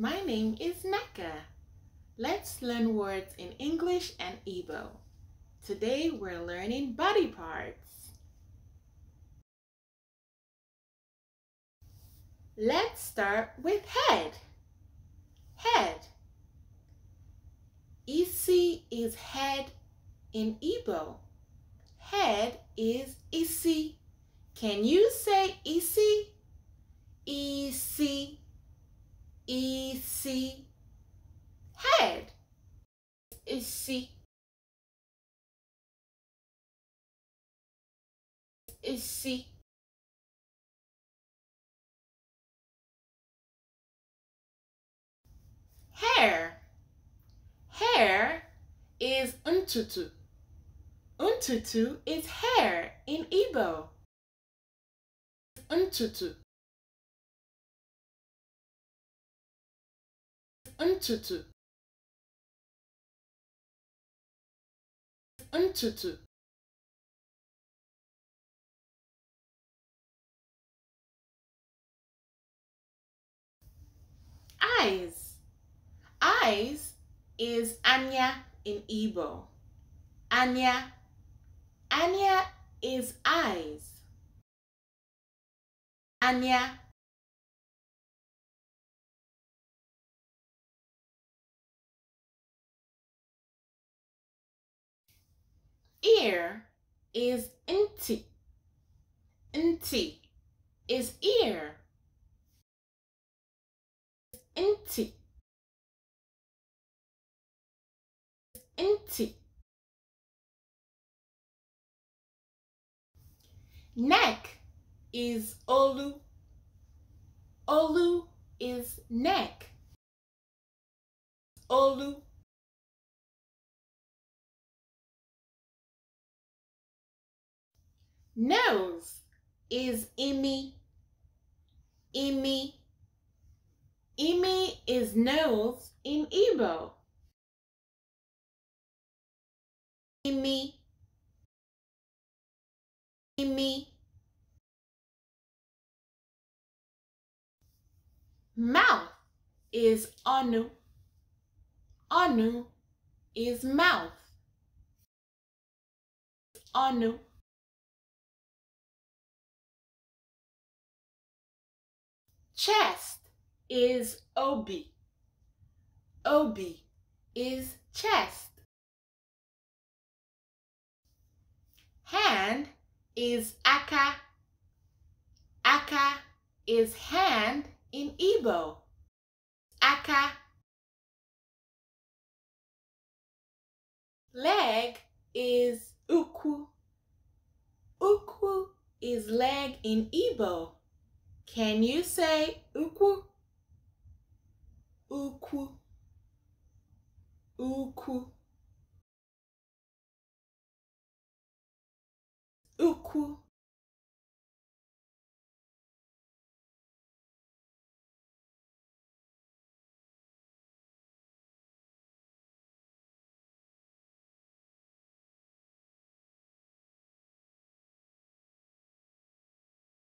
My name is Neka. Let's learn words in English and Igbo. Today we're learning body parts. Let's start with head. Head. Isi is head in Igbo. Head is isi. Can you say isi? EC head. is C is C hair. Hair is untutu. Untutu is hair in Igbo. Untutu. ntutu ntutu eyes eyes is anya in Igbo anya anya is eyes anya ear is inti. Inti is ear. Inti. Inti. Neck is olu. Olu is neck. Olu nose is Emmy, Emmy. Imi is nose in Igbo. Imi. Imi. Mouth is onu. Onu is mouth. Onu Chest is OB. OB is chest. Hand is aka. Aka is hand in Igbo. Aka. Leg is uku. Uku is leg in Igbo. Can you say uku, uku, uku, uku?